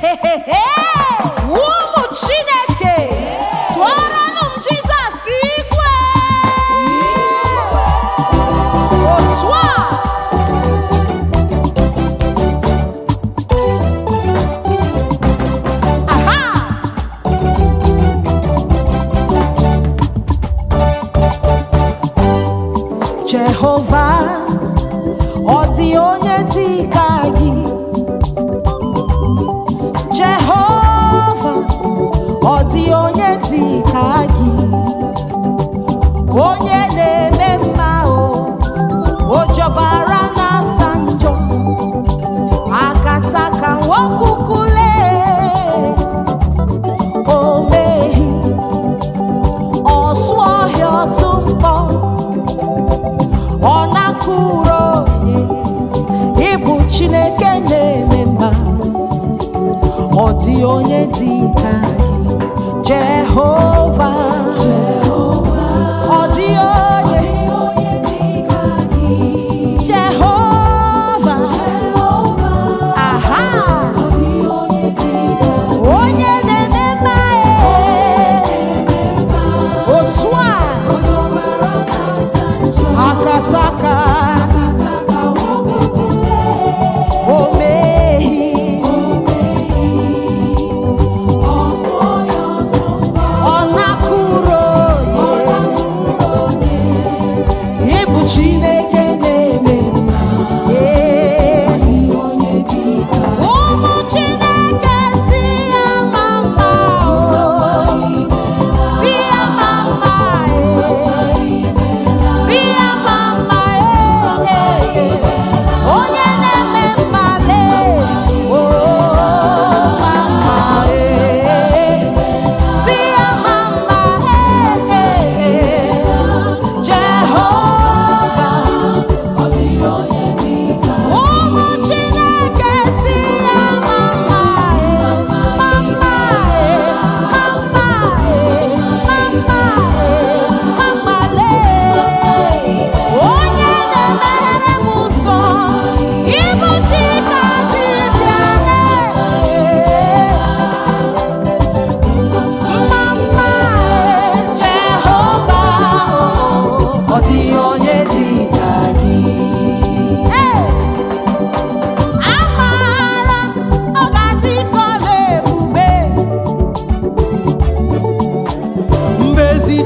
hey, hey, hey. onye ịbụ chineke na-eme mma ọ dị onye dị ka gị jehova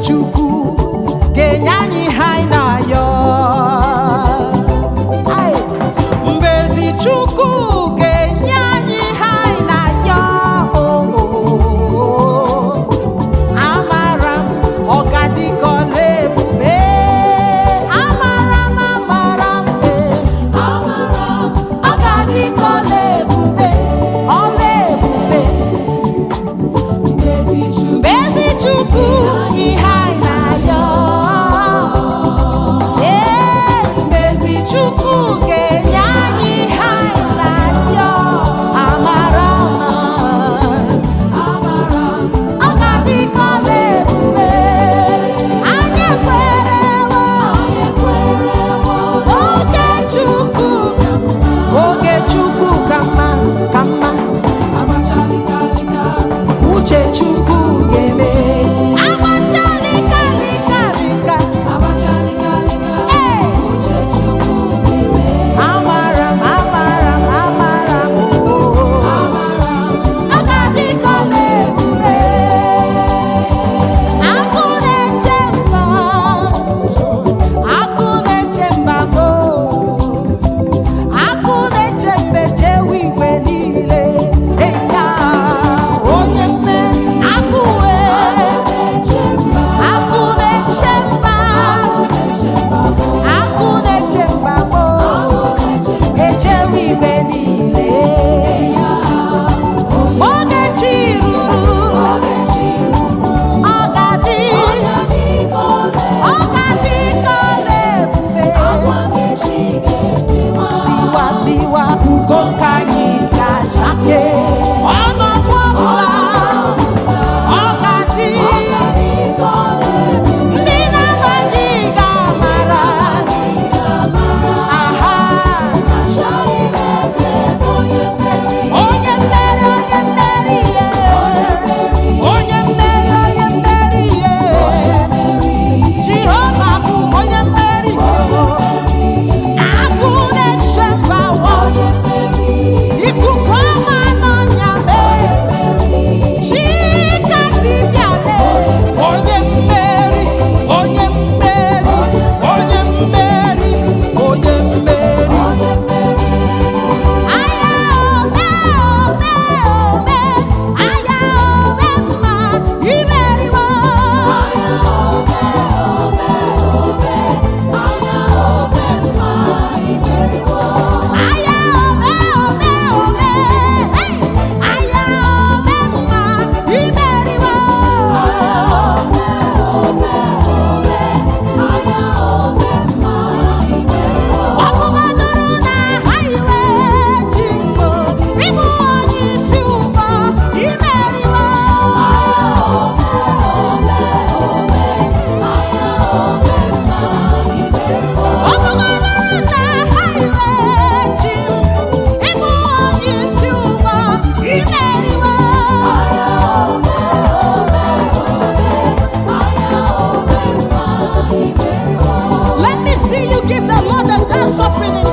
chukwu suffering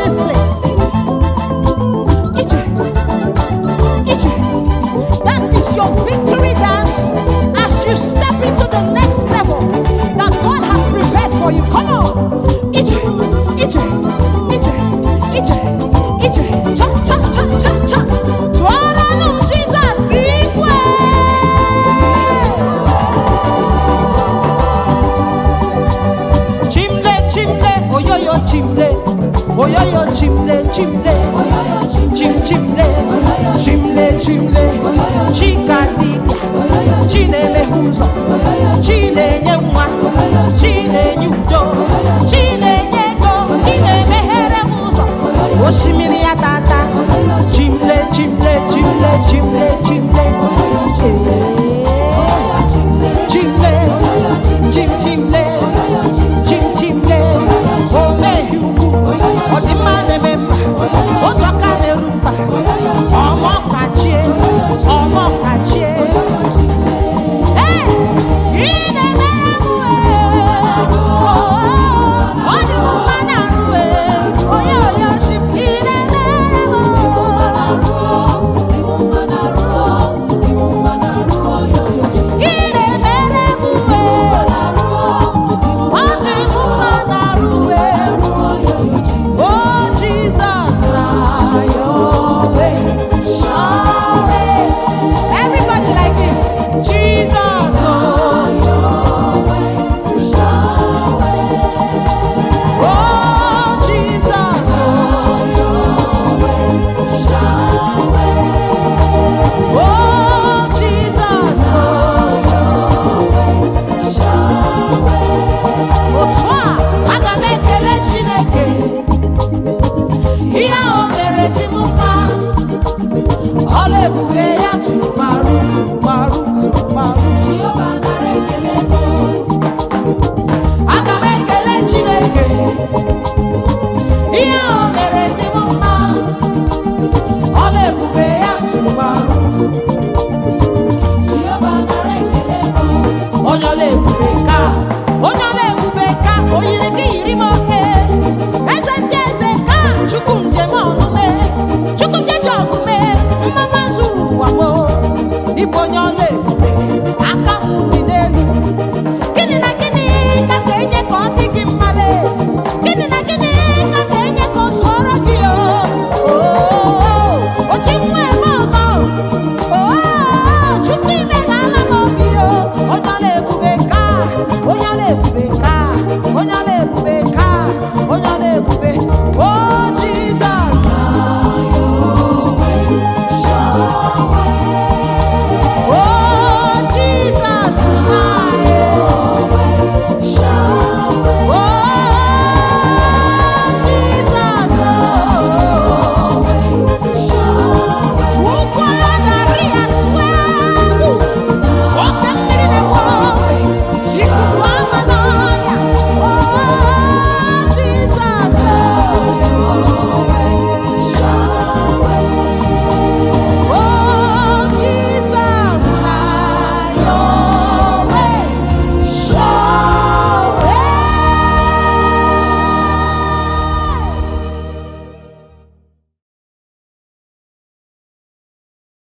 yeah